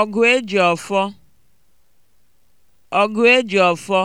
ọgụ eji ọfọ e ọfọ